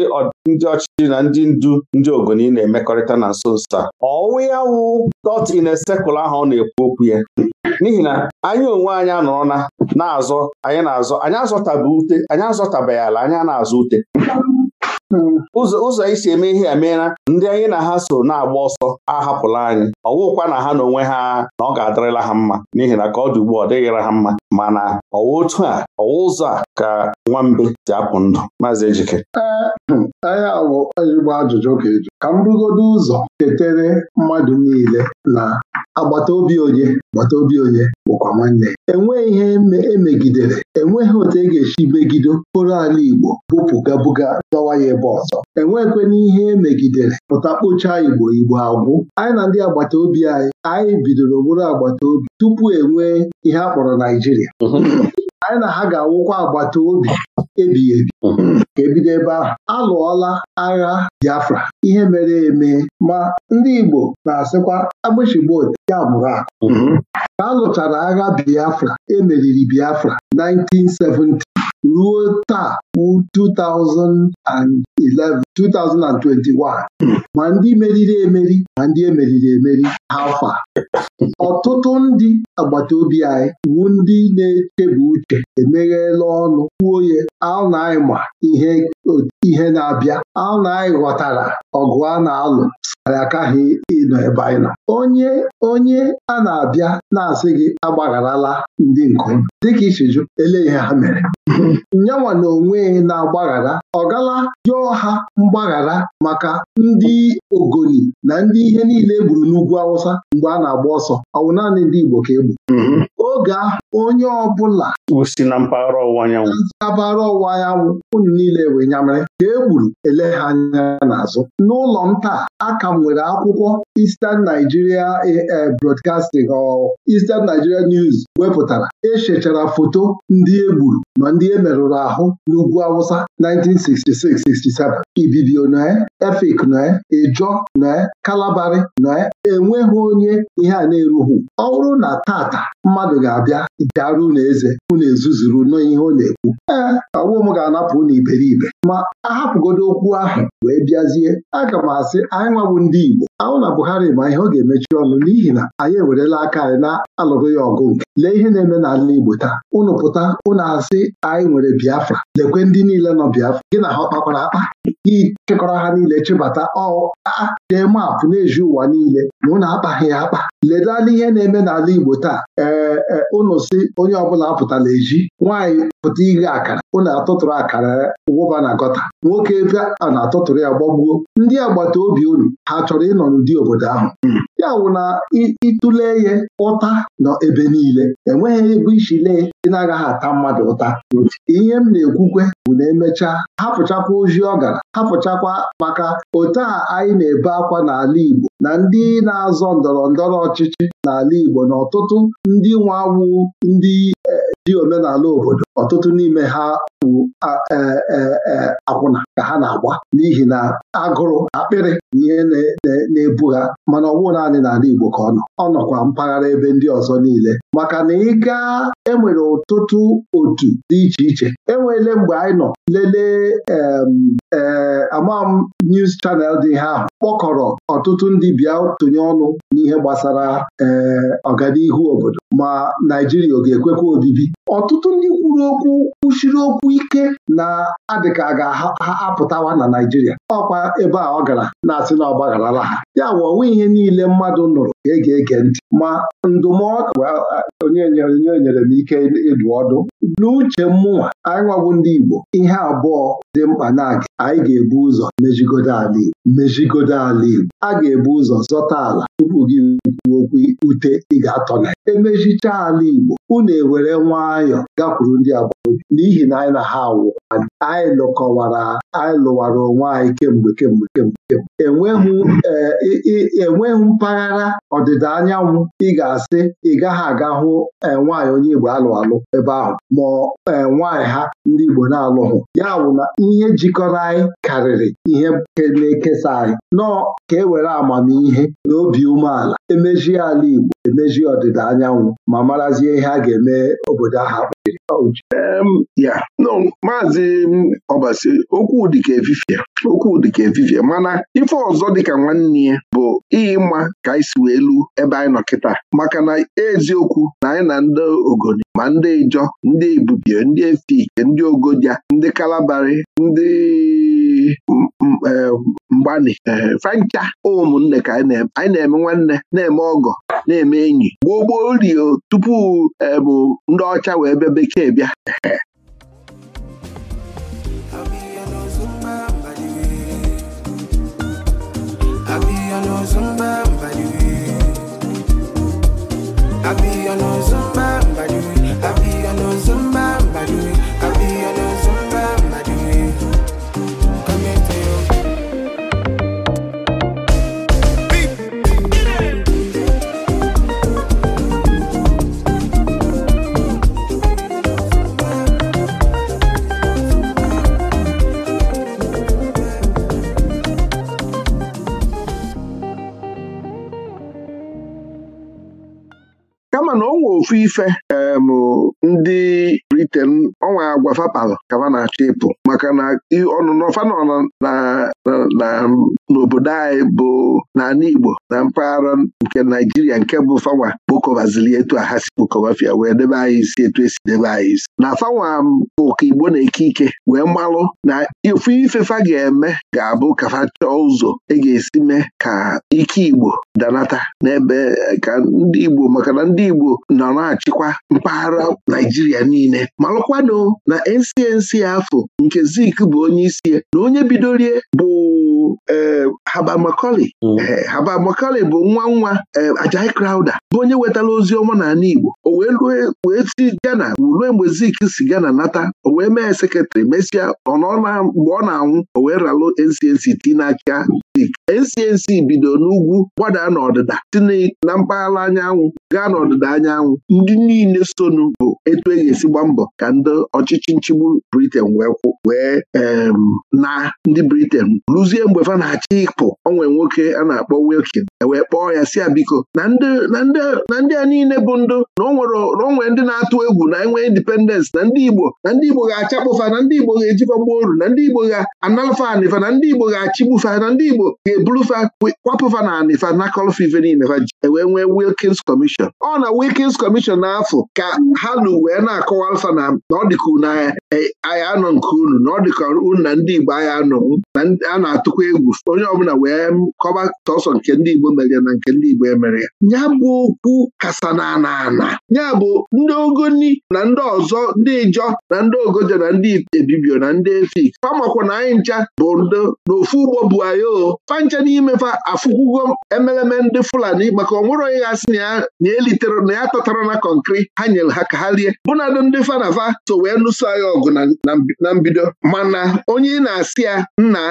ọchịchị na ndị ndu ndị ogoni na-emekọrịta na nso nso a ọwụ ya wụ dot in a circle ahụ ọ na-ekwu okwu ya n'ihi na anyị onwe anyị anọrọ na na-azọ anyị na-azọ anyị azọtabe ute anyị azọtabeghị ala anya na-azụ ute ụzọ isi eme ihe a ndị anyị na ha so na-agba ọsọ ahapụla anyị ọ ọwụkwa na ha na onwe ha na ọ ga-adịrịla ha mma n'ihi na ka ọ dị ugbu a ọ dịghịra ha mma mana ọwa otu a ọwa ụzọ a ka nwambe si apụ ndụ maazị Ejike anya awụ igba ajụjụ ka eju ka m rugodo ụzọ ketere mmadụ niile na agbata obi onye agbata obi onye bụkwa nwanne enweghị ihe emegidere e enweghị otu e ga-esi megido kporo ala Igbo bupụgabuga dọwa ya ebe ọzọ enweghịkwana ihe emegidere pụta kpochaa Igbo Igbo agwụ anyị na ndị agbata obi anyị anyị bidoro bụrụ agbata obi tupu enwee ihe a kpọrọ Naijiria Naịjirịa anyị na ha ga-awụkwa agbata obi ebighị ebi ka ebido ebe ahụ alụọla agha Biafra ihe mere eme ma ndị Igbo na-asịkwa agbụchigbo ya mụrụ akụ ka a agha Biafra emeriri Biafra 1970 ruo taa 2000 and 2021 ma ndị meriri emeri ma ndị emeriri emeri afọ a ọtụtụ ndị agbata obi anyị wu ndị na-echebu uche emeghela ọnụ kwuo ya anyị ma ihe na-abịa anyị ghọtara ọgụ a na-alụ anyị ịnọ ebe anyị nọ onye onye a na-abịa na-asị gị agbagharala ndị nkom dịka isiju ele ihe ha mere na na-agbaghara ọ gala yọọ ha mgbaghara maka ndị ogoni na ndị ihe niile e gburu n'ugwu Awụsa mgbe a na-agba ọsọ ọ wụ naanị ndị Igbo ka e mm-hmm. oge ahụ onye ọbụla si na mpaghara ọwụwa anyanwụ mpaghara ọwụwa anyanwụ unu niile wee nyamara. ka e gburu ele ha anya n'azụ n'ụlọ m taa aka nwere akwụkwọ Eastern Nigeria eh, eh, Broadcasting Eastern Nigeria News wepụtara echechara foto ndị e gburu ma ndị e merụrụ ahụ n'ugwu Awụsa 1966-67 Ibibio noe Efik eh, noe Ejọ noe Kalabari noe enweghị onye ihe a na-erughị ọ bụrụ na tata mmadụ ga-abịa daru unu eze unu ezuzuru n'ihe ọ na-ekwu ee eh, ọwụ m ga-anapụ unu iberibe ma ahapụgodo okwu ahụ wee bịazie aga m asị anyị nwabụ ndị Igbo ahụ na Buhari ma ihe ọ ga-emechi ọnụ n'ihi na anyị ewerela aka anyị na-alụrụ ya ọgụ nke lee ihe na-eme n'ala Igbo taa unu pụta unu asị anyị nwere Biafra lekwe ndị niile nọ Biafra gị na ha ọ kpakwara akpa ịchịkọrọ ha niile chịbata ọa dee maapụ na-eji ụwa niile ma na akpaghị ya akpa ledala ihe na-eme n'ala Igbo taa ee ụnụ e, si onye ọbụla apụtala eji nwanyị pụta ighe akara na atụtụrụ akara wụba na gọta nwoke ebe a na-atụtụrụ ya gbagbuo ndị agbata obi unu ha chọrọ ịnọ n'ụdị obodo ahụ hmm. ya wụ na ịtụle ihe ụta nọ ebe niile enweghị ebe isi lee ị na-agaghị ata mmadụ ụta ihe m na-ekwukwe bụ na emechaa hapụchakwa ozi ọ gara hapụchakwa maka otu a anyị na-ebe akwa n'ala Igbo na ndị na-azọ ndọrọ ndọrọ ọchịchị n'ala Igbo na ọtụtụ ndị nwa awụ ndị e, dị omenala obodo ọtụtụ n'ime ha bụ e, e, e, akwụna ka ha na-agba n'ihi na agụrụ akpịrị ihe na-ebu ha mana ọ bụghị naanị n'ala Igbo ka ọ nọ ọ nọkwa mpaghara ebe ndị ọzọ niile maka na ị gaa enwere ọtụtụ otu dị iche iche enweele mgbe anyị nọ lelee ee amam news channel dị ha ahụ kpọkọrọ ọtụtụ ndị bịa tụnye ọnụ n'ihe gbasara ee ọganihu obodo ma Naijiria ọ ga-ekwekwa obibi ọtụtụ ndị kwuru kwuru okwu kwuchiri okwu ike na adịka a ga-apụtawa na Naijiria ọkwa ebe a ọ gara na-asị na ọ gbagharala ha ya wụọ onwe ihe niile mmadụ nụrụ ga-ege ege ntị ma ndụmọdụ onye nyere m ike ịdụ ọdụ n'uche mụnwa anyị nwabụ ndị Igbo ihe abụọ dị mkpa na-aga anyị ga-ebu ụzọ mejigodo ala Igbo mejigodo ala Igbo a ga-ebu ụzọ zọta ala tupu gị kwuo okwu ute ị ga-atọ na emechicha ala Igbo unu ewere nwayọ gakwuru ndị agbata n'ihi na anyị na ha awụ anyị lụkọwara anyị lụwara onwe anyị kemgbe kemgbe kemgbe eh, enweghị mpaghara ọdịda anyanwụ ị ga-asị ị gaghị aga hụ e, nwaanyị onye Igbo alụ alụ ebe ahụ ma ee nwaanyị ha ndị Igbo na-alụghụ ya bụ na ihe jikọrọ anyị karịrị ihe na-ekesa anyị nọọ ka e were amamihe na obi umeala emezi ala Igbo emezi ọdịda anyanwụ ma marazie ihe a ga-eme obodo ahụ ya no maazị ọbasi okwu dịka efifie okwu dịka efifie mana ife ọzọ dịka nwanne ya bụ mma ka anyị si wee lu ebe anyị nọ kịta maka na eziokwu na anyị na ndị ogoni ma ndị ijọ ndị ibubie ndị efike ndị ogodia ndị kalabari ndị Eh, mgbani eh, fancha ụmụnne ka anyị na-eme nwanne na-eme ọgọ na-eme enyi gboo gboo rio tupu ebu eh, ndị ọcha wee bịa bekee bịa kama na ọ nwe ofu ife ndị malite ọnwa agwa fapalụ na-achọ ịpụ maka na ọnụnọ na n'obodo anyị bụ n'ala Igbo na mpaghara nke Naijiria nke bụ fawa. kpokọbazili etu a ha si wee debe anyị isi etu esi debe anyị isi na fawa bụ ka Igbo na-eke ike wee malụ na ofu ifefa ga-eme ga-abụ ka fa chọọ ụzọ e ga-esi mee ka ike Igbo danata n'ebe ka ndị Igbo maka na ndị Igbo nọ na-achịkwa mpaghara Naijiria niile malụkwanụ na NCNC afọ nke Zik bụ onye isi na onye bidorie bụ e, Haba hmm. e, Macaulay bụ nwa nwa e, ajai Crowder bụ onye wetara ozi ọma n'ala Igbo o wee wee si Ghana rue mgbe Zik si Ghana nata o wee mee sekretrị mesịa ọ na mgbe ọ na-anwụ o wee ralụ NCNC ti n'aka NCNC bido n'ugwu gbada n'ọdịda tinye na mpaghara anyanwụ gaa n'ọdịda anyanwụ ndị niile sonu bụ etu e ga-esi gba mbọ ka ndị ọchịchị nchigbu Briten wee na ndị Briten rụzie mgbe fa na-achị ịpụ onwe nwoke a na-akpọ Wilkin e wee kpọọ ya si ya biko na ndị a niile bụ ndụ na onwere ndị na-atụ egwu na enwe indipendensị na ndị Igbo na ndị Igbo ga-achakpụfa na ndị Igbo ga eji gbuo oru na ndị Igbo ga-analụfa anịfa na ndị Igbo ga-achịgbufa na ndị Igbo ga eburufa kwapụfa na anị fa nakọlf niile fa ji wee nwee wilkins kọmishọn ọ na wilkins kọmishọn n'afọ ka ha na wee na-akọwa alfa na ọ dịka e, anọ nke unu na ọ unu na ndị igbo anyị anọ a na-atụkwa egwu onye ọbụla wee kọba tọsọ nke ndị igbo mere na nke ndị igbo emere ya ya bụ okwu kasa na ana ya bụ ndị ogoni na ndị ọzọ ndị ijọ na ndị ogojo na ndị ebibio na ndị efik famakwa na anyị ncha bụ ndo n'ofu ugbo bụ anyị o ncha n'imefa afụkwugo emeleme ndị Fulani maka onwere onye gasị na ya elitere na ya tọtara na kọnkri ha nyere ha ka ha lie bụnadụ ndị fanafa so wee nụso agha ọgụ na mbido mana onye ị na-asị ya nna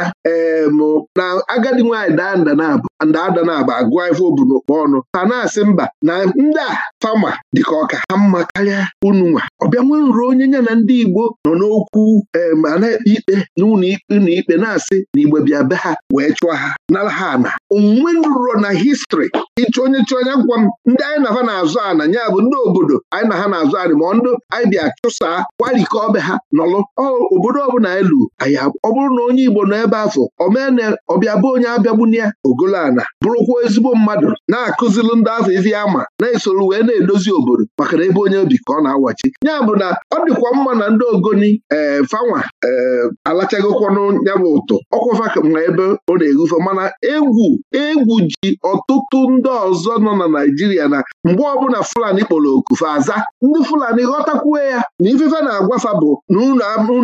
na agadi nwaanyị daa nda na-abụ ndaada na-aba agụọ ife obunu okpo ọnụ ha na-asị mba na ndị a fama dịka ọka ha mma karịa unu nwa ọbịa nwe nrụ onye nya na ndị Igbo nọ n'okwu ma na-ekpe ikpe n'ụlọ ikpe na-asị na igbe bịa be ha wee chụọ ha nara ha ana onwunwe ruro na histri ịchụ onye chụ onye gwa m ndị anyị na ha na-azụ ana ya bụ ndị obodo anyị na ha na-azụ anị ma ndụ anyị bịa chụsaa gwarikọ ọbịa ha nọlụ obodo ọbụla elu lụ ọ bụrụ na onye Igbo nọ ebe afọ omene ọbịa bụ onye abịagbuni ya ogolo ana bụrụkwa ezigbo mmadụ na-akụzilụ ndị afọ izi ama na-esoro wee na-edozi obodo maka na ebe onye obi ka ọ na-awachi ya bụ na ọ dịkwa mma na ndị ogoni ee eh, fanwa ee eh, alachagokwanụ ya bụ ụtọ ọkwụfa ma ebe ọ na-egufe mana na egwu egwu ji ọtụtụ ndị ọzọ nọ na Naịjirịa na mgbe ọbụla Fulani kpọrọ okufe aza ndị Fulani ghọtakwuo ya na ifefe na-agwafa bụ na unu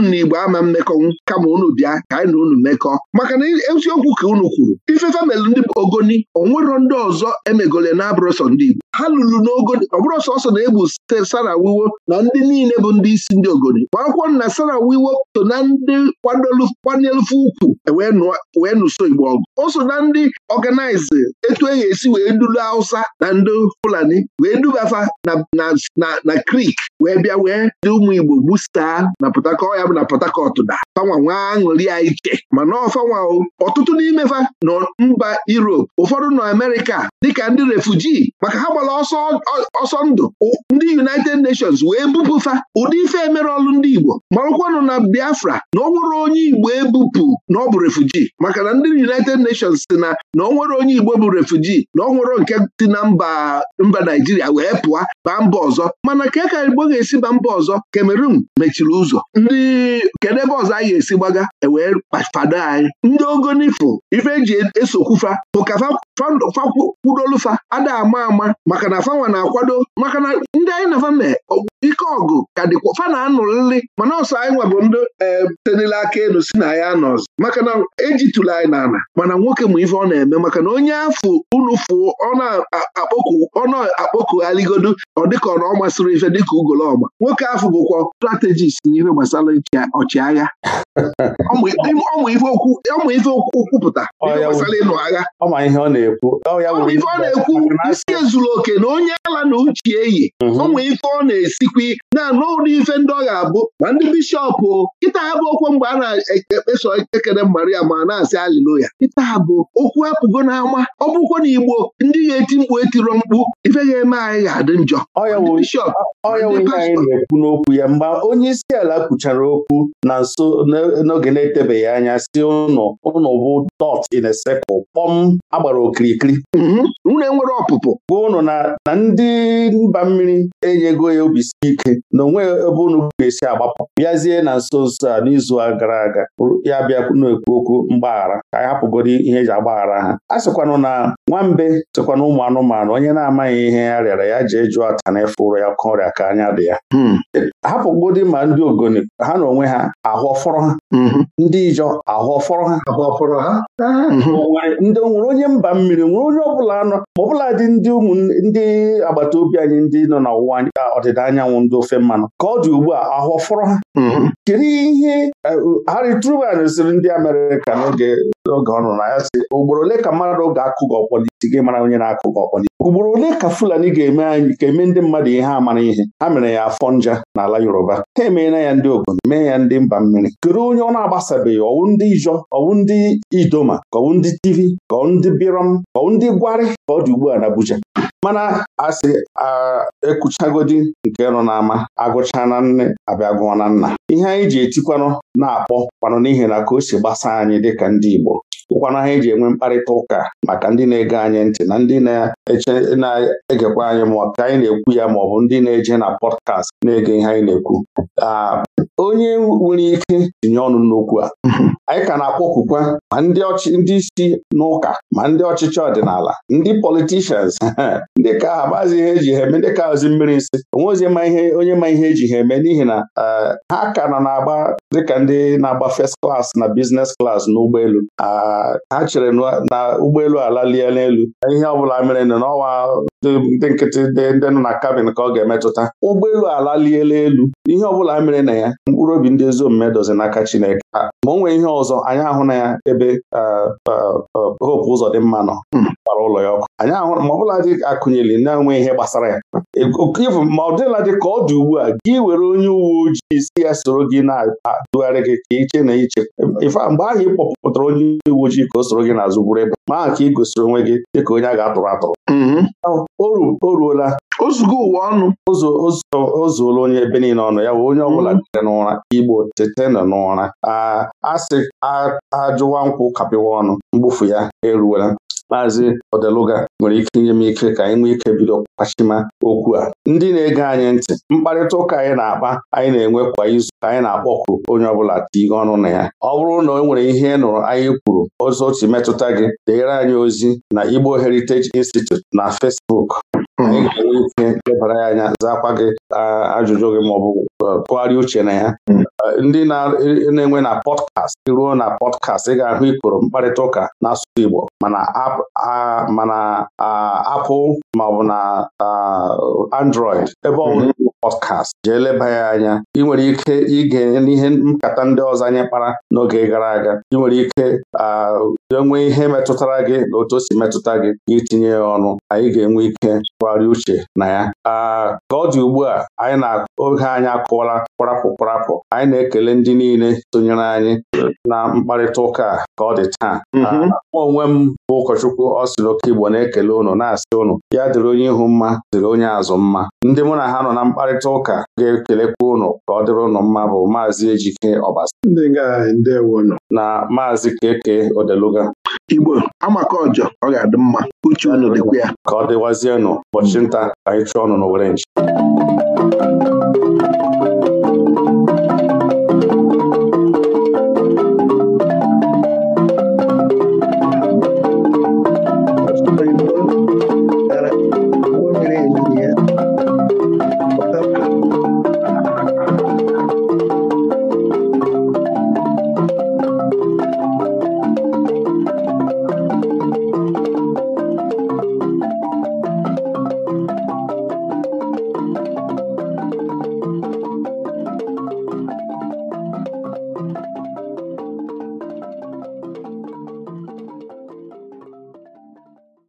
na Igbo ama mmekọnwụ kama unu bịa ka anyị na unu mekọọ maka na eziokwu ka unu kwuru ifefe melụ ndị ogoni onwero ndị ọzọ emegole na-abụrọsọ ndị Igbo ha lụrụ n'ogoni ọbụrụ sọsọ na-egbu Sara Wiwo na ndị niile bụ ndị isi ndị ogoni ma akwụkwọ na Sara Wiwo so na ndị kwanyelụfe ukwu e wee nụso Igbo ọgụ o so na ndị ọganaize etu e esi wee dulu Hausa na ndị Fulani wee dubafa na na Krik wee bịa wee dị ụmụ Igbo gbusaa na pọtakọ ya bụ na Port Harcourt da fanwa nwa aṅụrị ya iche mana ọfanwa ọtụtụ n'imefa nọ mba Europe ụfọdụ nọ amerika dịka ndị refuji maka ha gbara ọsọ ndụ ndị United Nations wee bupụfa ụdị ife emere ọlụ ndị Igbo marụkwanụ na Biafra na ọ nwere onye Igbo ebupụ na ọ bụ refuji maka na ndị United Nations si na na ọ nwere onye Igbo bụ refuji na ọ nwere nke si na mba mba Naijiria wee pụọ baa mba ọzọ mana ka e ka Igbo na-esi mba mba ọzọ Cameroon mechiri ụzọ ndị kedu ebe ọzọ anyị ga-esi gbaga ewee kpafado anyị ndị ogonifụ ife eji esokwufa ụkafa fakwudolufa ada ama ama maka na fanwa na-akwado maka na ndị anyị na fame ike ọgụ ka dịkwa fana na-anụrịrị mana ọsọ anyị nwabụ ndị e, tenile aka elu si na ya nọ ọzọ maka na ejitụla anyị n'ala mana nwoke ma ife ọ na-eme maka na onye afụ unu fụ ọ na-akpọku aligodo ọ dịka ọ na ọ masịrị ife dịka ugolo ọgba nwoke ahụ bụkwa strategist n'ihe gbasara ọchịagha ọmụ ife okwu kwupụta gbasara ịnụ agha ọma ọ na-ekwu na-ekwu isi ezuru oke na onye ala na uche eyi mhm. ọmụ ife ọ na-esikwi na n'ụlọ ife ndị ọ ga-abụ ma ndị bishọp kịta ha bụ okwu mgbe a na-ekpeso ekele Maria ma na-asị aliloya kịta ha bụ okwu apụgo n'ama ọ bụkwa na Igbo ndị ga-eti mkpu etiro mkpu ife ga-eme anyị ga-adị njọ bishọp ife anyị na-ekwu n'okwu ya mgbe onye isi ala kwuchara okwu na nso n'oge na-etebeghị anya si ụnụ ụnụ bụ dot in a kpọm agbara okirikiri nwunye mm-hmm. nwere ọpụpụ gwa ụnụ na ndị mba mmiri enyego ya obi si ike na onwe ebe ụnụ ga-esi agbapụ bịazie na nso nso a n'izu a gara aga ya bịa na-ekwu okwu mgbaghara ka anyị hapụgoro ihe eji agbaghara ha a sịkwanụ na nwambe tụkwa na ụmụ anụmanụ onye na-amaghị ihe ya rịara ya jee jụọ ata na efe ụrọ ya oke ọrịa ka anya dị ya hmm. gbọdị ma ndị ogoni ha na onwe ha ahụ ọfọrọ ha hmm. ndị ijọ ahụ ọfọrọ ha ndị nwere onye mba mmiri nwere onye ọbụla anọ ma ọbụla dị ndị ụmụ ndị agbata obi anyị ndị nọ na ọwụwa ọdịda anyanwụ ndị ofe mmanụ ka ọ dị ugbu a ahụ fọrọ ha mm-hmm. kedu ihe e, Harry Truman sịrị ndị Amerịka n'oge ọ nọ na ya si ugboro ole ka mmadụ ga-akụ gị ọkpọ si mara onye na-akụkọ ọkpọnị ugboro ole ka Fulani ga-eme anyị ga-eme ndị mmadụ ihe amara ihe ha mere ya afọ nja n'ala Yoruba ha emeela ya ndị obodo mee ya ndị mba mmiri kedu onye ọ na-agbasabeghị ọwụ ndị Ijọ ọwụ ndị Idoma ka ọwụ ndị Tivi ka ndị Birom ka ndị Gwari ka ọ dị ugbu a na Abuja mana asị ekuchagodi nke nọ n'ama agụcha na nne abịa gụọ na nna ihe anyị ji etikwanụ na-akpọ kwanụ n'ihi na ka o si gbasa anyị dịka ndị Igbo ụkwanụ ha eji enwe mkparịta ụka maka ndị na-ege anyị ntị na ndị na-egekwa anyị ma ka anyị na-ekwu ya ma ọ bụ ndị na-eje na pọdkast na-ege ihe anyị na-ekwu onye nwere ike tinye ọnụ n'okwu a anyị ka na-akpọkukwa ma ndị isi n'ụka ma ndị ọchịchị ọdịnala ndị politishans ndị ka ha maazị ihe eji ha eme ndị ka ozi mmiri nsị onwe ozi onye ma ihe eji ha eme n'ihi na ha ka na na-agba dịka ndị na-agba first class na business class n'ụgbọelu ha chere na ụgbọelu alalie elu. ihe ọbụla mere n'ọnwa ndị nkịtị ndị nọ na kabin ka ọ ga-emetụta ụgbọelu alaliela elu ihe ọ bụla e mere na ya mkpụrụ obi ndị ezi omume dozi n'aka Chineke ah, ma o nwee ihe ọzọ anyị ahụ na ya ebe ah, ah, hope ụzọ dị mma nọ hmm. gbara ụlọ ya ọkụ anyị ahụ ma ọbụla dị akụnyeli na-enwe ihe gbasara ya e, ma ọ dịla dị ka ọ dị ugbu a gị were onye uwe ojii si ya soro gị na-adụgharị gị ka iche na iche ife mgbe ahụ ị kpọpụtara onye uwe ojii ka o soro gị na gburu ịba maa ka ị gosiri onwe gị dịka onye a ga-atụrụ atụrụ mm-hmm. o ruola ozugbo ụwa ọnụ ozuola onye ebe niile ọnụ ya bụ onye ọbụla mm-hmm. tere n'ụra igbo tete nọ n'ụra a asị ajụwa nkwụ kapịwa ọnụ mgbufu ya eruola Maazị Odeluga nwere ike inye m ike ka anyị nwee ike bido kpachima okwu a ndị na-ege anyị ntị mkparịta ụka anyị na-akpa anyị na-enwe kwa izu ka anyị na-akpọku onye ọbụla tinye ọnụ na ya ọ bụrụ na o nwere ihe ị nụrụ anyị kwuru ọzọ otu metụta gị deere anyị ozi na Igbo Heritage Institute na Facebook anyị hmm. ga-enwe ike lebara ya anya zaakwa gị ah, ajụjụ gị maọbụ uh, tụgharịa uche na ya hmm. uh, ndị e, e, na-enwe na pọdkast ruo na pọdkast ị ga-ahụ ikoro mkparịta ụka n'asụsụ Igbo mana apụl maọbụ na android ebe ọ hmm. bụla pọdkast jee leba ya anya ị nwere ike ige n'ihe nkata ndị ọzọ anyị kpara n'oge gara aga ị nwere ike ah, bido nwee ihe metụtara gị na otu o si metụta gị itinye ya ọnụ anyị ga-enwe ike tụgharịa uche na ya ka ọ dị ugbu a anyị na-oge anyị akụwala kwarapụ kwarapụ anyị na-ekele ndị niile sonyere anyị na mkparịta ụka a ka ọ dị taa mm-hmm. mụ onwe m bụ ụkọchukwu ọ Igbo na-ekele ụnụ na-asị ụnụ ya dịrị onye ihu mma dịrị onye azụ mma ndị mụ na ha nọ na mkparịta ụka ga-ekelekwa ụnụ ka ọ dịrị ụnụ mma bụ maazị Ejike ọbasa na maazị Keke Odeluga Igbo amaka ọjọ ọ ga-adị mma uche unu dịkwa ya ka ọ dịwazienụ ụbọchị nta anyị chụọ ọnụ n'Owerre nchi